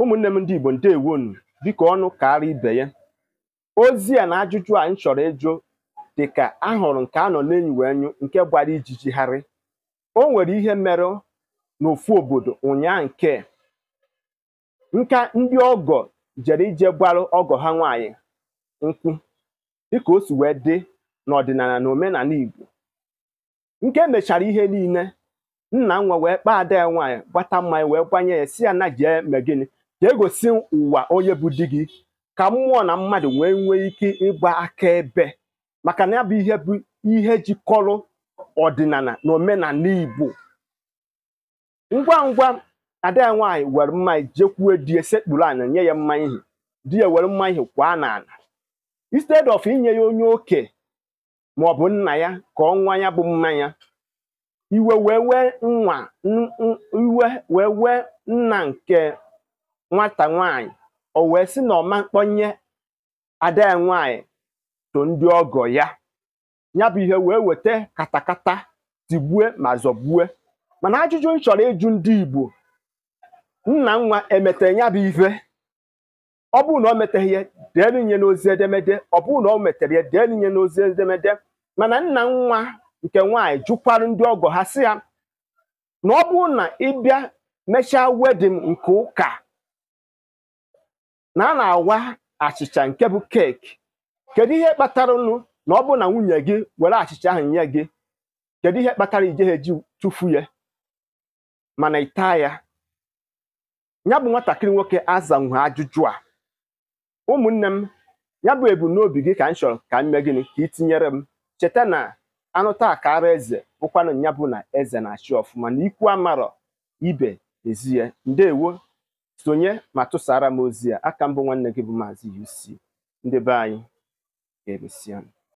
ụmụnne m ndị igbo ndewonu dịka ọnụ kara ibe ya ozi a na ajụjụ a m chọrọ ịjụ dịka ahụrụ nke a nọ n'enyi wee nyụ nke gbara ijijigharị o nwere ihe mere n'ofu obodo ụnyaa nke nka ndị ọgọ jere ije gbaru ọgọ ha nwanyị nkwụ dịka o si wee dị n'ọdịnala na omenala igbo nke mechara ihe niile nna nwa wee kpaa ada ya nwaanyị gbata mmanya wee gbanye ya si ya na jee gịnị ka egosi ụwa onye bụ di gị ka mmụọ na mmadụ wee nwee ike ịgba akaebe maka na ya bụ ihe bụ ihe jikọrọ ọdịnala na omenala Igbo ngwa ngwa ada ya nwaanyị were mmanya jekwuo di sekpuru ana nye ya mmanya ihe di ya were mmanya ihe kwaa n'ala instead of inye ya onye oke ma ọ bụ nna ya ka ọ nwa ya bụ mmanya iwe wee wee nwa iwe wee wee nna nke nwata nwanyị o wee sị na ọma mkpọnye ada ya nwanyị to ndị ọgọ ya ya bụ ihe wee weta katakata tigbue ma zọgbue mana ajụjụ m chọrọ ịjụ ndị Igbo nna nwa emete ya bụ ife ọ bụrụ na o meteghị ya deelu n'ozi edemede ọ bụrụ na o metere ya deelu nye n'ozi edemede mana nna nwa nke nwaanyị jụkwarụ ndị ọgọ ha sị ya na ọ bụrụ na ịbịa mechaa wedin nke ụka na a na-awa achịcha nke bụ keeki kedu ihe kpatara ụnụ na ọ bụ na nwunye gị were achịcha ahụ nye gị kedu ihe kpatara ijegha eji tụfu ya mana ịta ya ya bụ nwatakịrị nwoke azanwe ajụjụ a ụmụnne m ya bụ ebumnobi gị ka m chọrọ ka m mee gịnị ka ị tinyere m cheta na anụ taa ka ara eze bụkwanụ ya bụ na eze na-achị ọfụma na ikwu amarọ ibe ezie ndewo sonye ma tụsara m ozi a aka mbụ nwanne gị bụ Maazị UC ndị be anyị ga-emesịa